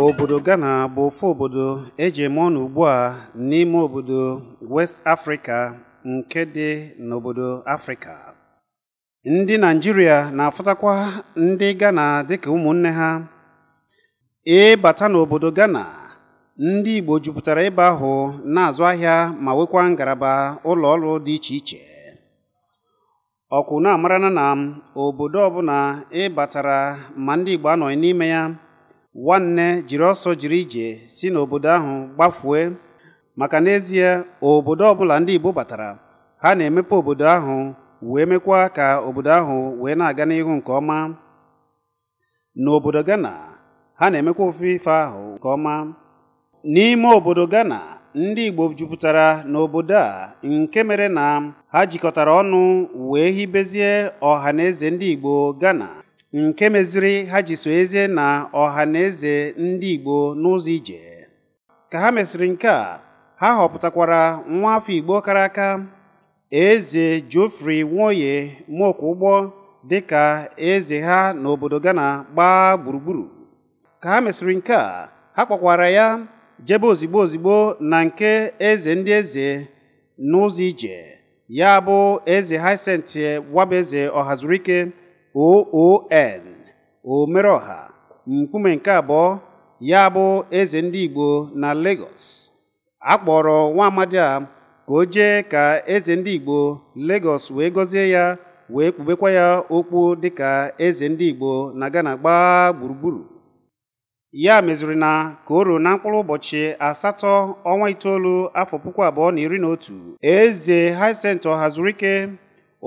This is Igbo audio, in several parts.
obodo ghana bụ ofu obodo eji eme ọnụ ugbu a n'ime obodo west afrịka nke dị n'obodo afrịka ndị naijiria na-afụtakwa ndị ghana dịka ụmụnne ha ịbata e n'obodo ghana ndị igbo jupụtara ebe ahụ na-azụ ahịa ma nwekwa ngaraba ụlọ ọrụ dị iche iche ọkwụ na-amarana na obodo ọbụla ịbatara e ma ndị igbo anọghị n'ime ya nwanne jiri ọsọ jiri ije si n'obodo ahụ gbafue maka n'ezie obodo ọbụla ndị Igbo batara ha na-emepe obodo ahụ wee mekwa ka obodo ahụ wee na-aga n'ihu nke ọma n'obodo Ghana ha na-emekwa ofufe ahụ nke ọma n'ime obodo Ghana ndị Igbo jupụtara n'obodo a nke mere na ha jikọtara ọnụ wee hibezie ọha na eze ndị Igbo Ghana nke meziri ha ji so eze na ọha na eze ndị Igbo n'ụzọ ije ka ha mesịrị nke a ha họpụtakwara nwa afọ Igbo kara aka eze Geoffrey Nwoye dị dịka eze ha n'obodo Ghana gbaa gburugburu ka ha mesịrị nke a ha kpọkwara ya jebe ozigbo ozigbo na nke eze ndị eze n'ụzọ ije ya bụ eze wabaeze Wabeze Ọhazurike oon omeroha nkume nke abụọ ya bụ eze ndị igbo na Lagos akpọrọ nwa amadi a ka o jee ka eze ndị igbo Lagos wee gọzie ya wee kpubekwa ya okwu dị ka eze ndị igbo na Ghana gbaa gburugburu ya meziri na ka o ruo na mkpụrụ ụbọchị asatọ ọnwa itoolu afọ puku abụọ na iri na otu eze Hyacinth Ọhazurike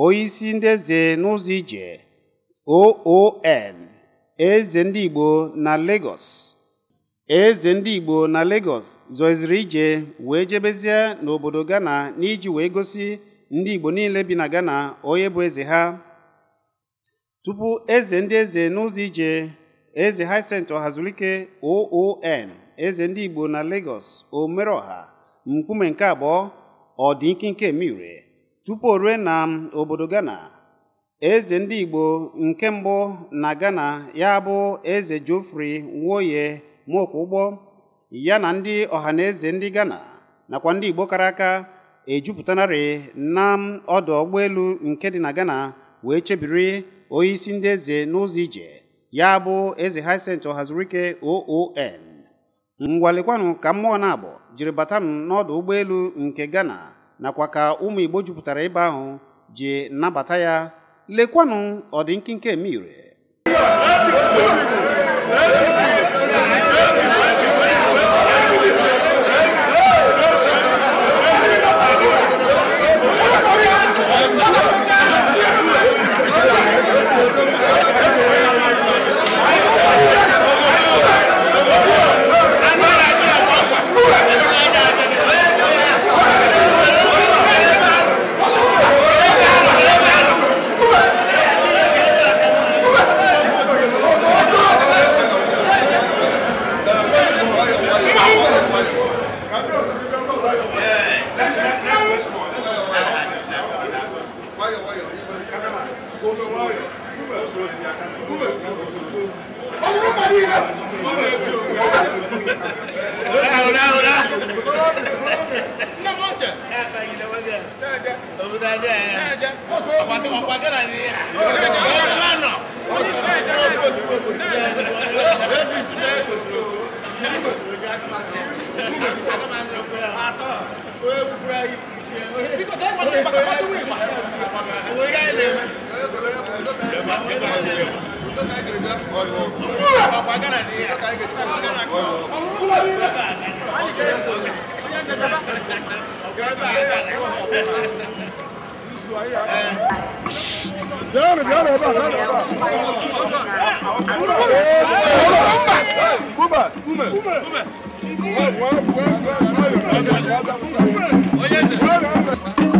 onyeisi ndị eze n'ụzọ ije OON eze ndị Igbo na Lagos eze ndị Igbo na Lagos zoziri ije wee jebezie n'obodo Ghana n'iji wee gosi ndị Igbo niile bi na Ghana onye bụ eze ha tupu eze ndị eze n'ụzọ ije eze Hyacint Ọhazulike OON eze ndị Igbo na Lagos Omeroha mkpume nke abụọ ọ dị ikinke tupu o rue na obodo Ghana eze ndị igbo nke mbụ na ghana ya bụ eze jofri nwoye mokụụgbọ ya na ndị ọhaneze ndị ghana nakwa ndị igbo kara aka ejupụtanarị na ọdụ ụgbọelu nke dị na ghana wee chebiri onyeisi ndị eze n'ụzọ ije ya bụ eze Hyacinth ọhazirike oon mgbalịkwanụ ka mmụọ na-abụ jiri batanụ n'ọdụ ụgbọelu nke ghana nakwa ka ụmụ igbo jupụtara ebe ahụ ji nabata ya lekwanụ ọdị nkịnke eme ire Because that's what they're doing. Yàrá bí yàrá bá yàrá bá. Kuma kuma kuma. Wọ́n wọ́n wọ́n wọ́n.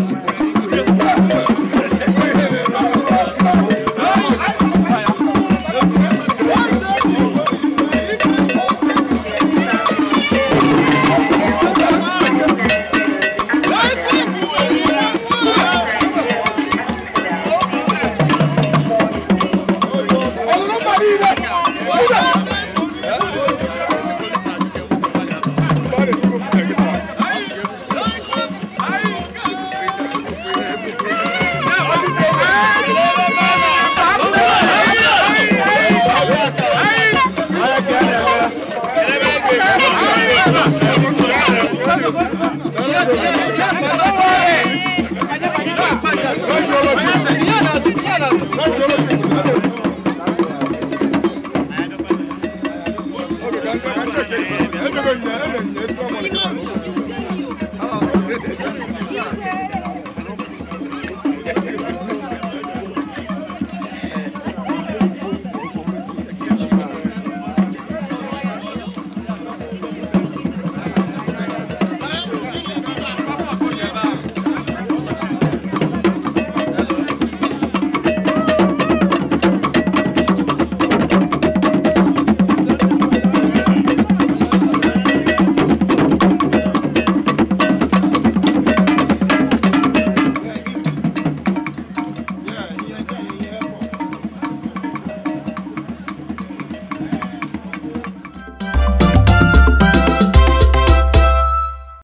Öyle öyle. Esnamalık.